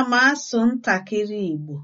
Ana m asụ ntakịrị Igbo